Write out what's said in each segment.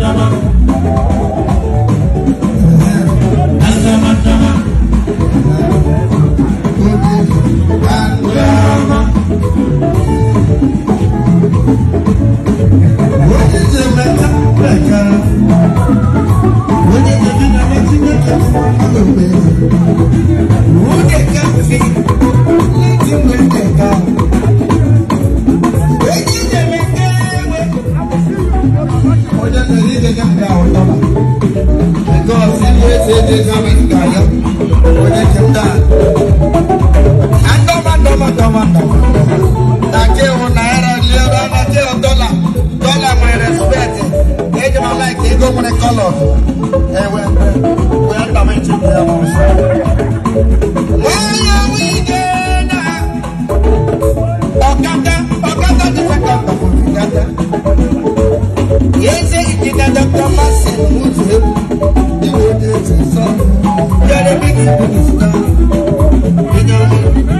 Yeah. go one color. Hey, we are coming to the house. Why are we there now? Okada, Okada, the second of Yes, it is a doctor, Massey, who's him. The world is so. You're the biggest minister. You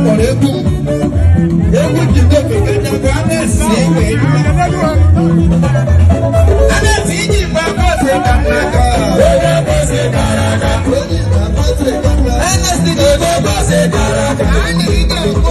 kpọrọ egwu egwu jide okike nyakwa a na-esi egbe a na-esi iji igbe akpọsị ka nnaka a na-esi igbe akpọsị ka nnaka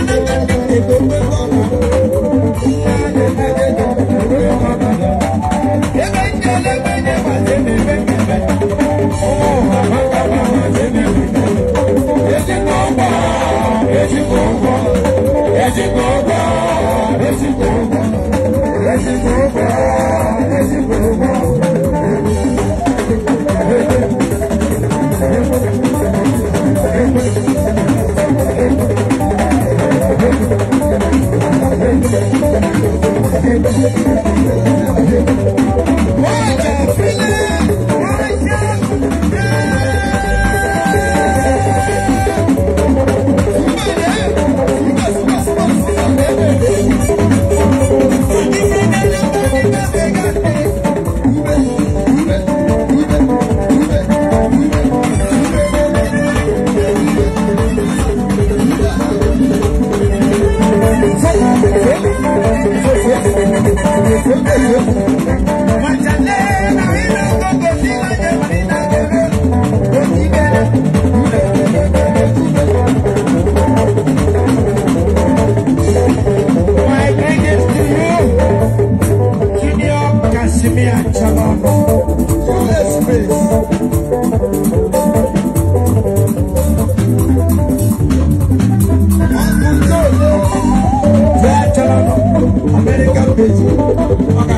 Thank you. Thank you.